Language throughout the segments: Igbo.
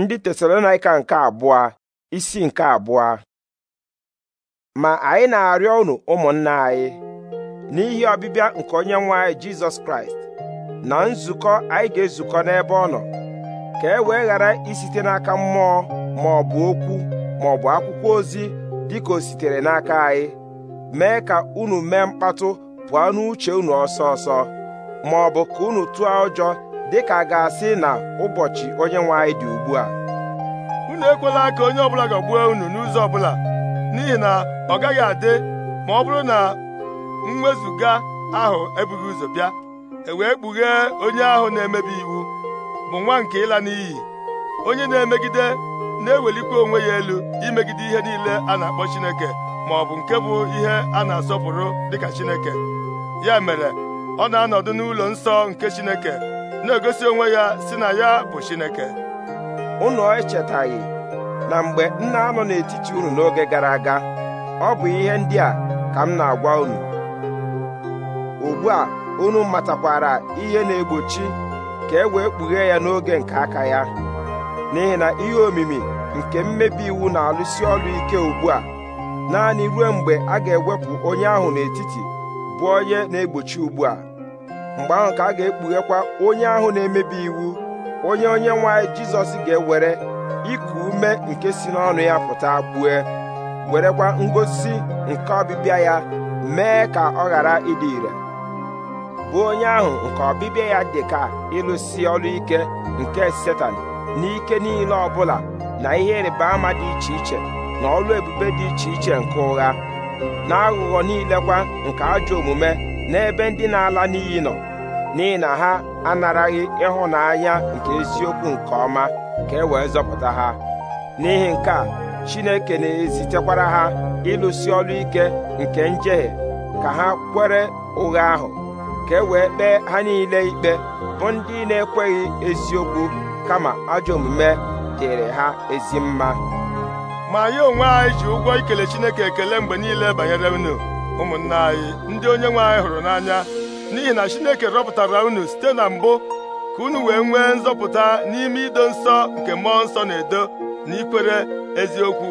ndị tesalonaika nke abụọ isi nke abụọ ma anyị na-arịọ unu ụmụnna anyị n'ihi ọbịbịa nke onye nwe anyị jizọs kraịst na nzukọ anyị ga-ezukọ n'ebe ọ nọ ka e wee ghara isite n'aka mmụọ ma ọ bụ okwu ma ọ bụ akwụkwọ ozi dịka o sitere n'aka anyị mee ka unu mee mkpatụ pụọ n'uche unu ọsọ ọsọ ma ọ bụ ka unu tụọ ụjọ dịka a ga-asị na ụbọchị onye nwe anyị dị ugbu a unu ekwela ka onye ọbụla ga-agbuo unu n'ụzọ ọbụla n'ihi na ọ gaghị adị ma ọ bụrụ na mwezuga ahụ ebughị ụzọ bịa e wee kpughee onye ahụ na-emebi iwu bụ nwa nke ịla n'iyi onye na-emegide na-ewelikwa onwe ya elu imegide ihe niile a na-akpọ Chineke ma ọ bụ nke bụ ihe a na-asọpụrụ dịka Chineke ya mere ọ na-anọdụ n'ụlọ nsọ nke Chineke na-egosi onwe ya si na ya bụ Chineke unu echetaghị na mgbe nna nọ n'etiti unu n'oge gara aga ọ bụ ihe ndị a ka m na-agwa unu ugbu a unu matakwara ihe na-egbochi ka e wee kpughee ya n'oge nke aka ya n'ihi na ihe omimi nke mmebi iwu na-alụsi ọrụ ike ugbu a naanị ruo mgbe a ga-ewepụ onye ahụ n'etiti bụ onye na-egbochi ugbu mgbe ahụ ka a ga-ekpughekwa onye ahụ na-emebi iwu onye onye nwanyị jizọs ga-ewere iku ume nke si n'ọnụ ya pụta gbue werekwa ngosi nke ọbịbịa ya mee ka ọ ghara ịdị ire bụ onye ahụ nke ọbịbịa ya dị ka ịlụsi ọrụ ike nke setan n'ike niile ọbụla na ihe ịrịba ama dị iche iche na ọrụ ebube dị iche iche nke ụgha na aghụghọ niile kwa nke ajọ omume n'ebe ndị na-ala n'iyi nọ n'ihi na ha anaraghị ịhụnanya nke eziokwu nke ọma ka e wee zọpụta ha n'ihi nke a Chineke na-ezitekwara ha ịlụsi ọrụ ike nke njehie ka ha kwere ụgha ahụ ka e wee kpee ha niile ikpe bụ ndị na-ekweghị eziokwu kama ajọ omume dịrị ha ezi mma ma anyị onwe anyị ji ụgwọ ikele Chineke ekele mgbe niile banyere unu ụmụnna anyị ndị onye nwe anyị hụrụ n'anya n'ihi na Chineke rọpụtara unu site na mbụ ka unu wee nwee nzọpụta n'ime ido nsọ nke mmụọ nsọ na-edo na ikwere eziokwu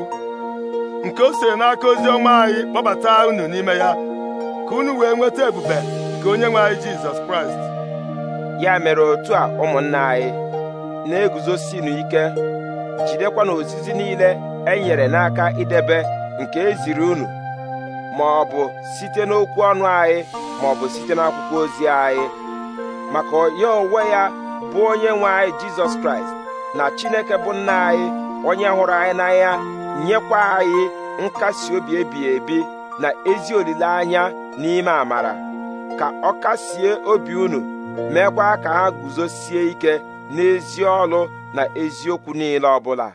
nke o siri n'aka ozi ọma anyị kpọbata unu n'ime ya ka unu wee nweta ebube nke onye nwe anyị Jizọs Kraịst ya mere otu a ụmụnna anyị na-eguzosinu ike jidekwa na ozizi niile e nyere n'aka idebe nke eziri unu ma ọ bụ site n'okwu ọnụ anyị ma ọ bụ site n'akwụkwọ ozi anyị maka ya onwe ya bụ onye nwe anyị jizọs kraịst na chineke bụ nna anyị onye hụrụ anyị n'anya nyekwa anyị nkasi obi ebighị ebi na ezi olileanya n'ime amara ka ọ kasie obi unu meekwa ka ha guzosie ike n'ezi ọlụ na eziokwu niile ọbụla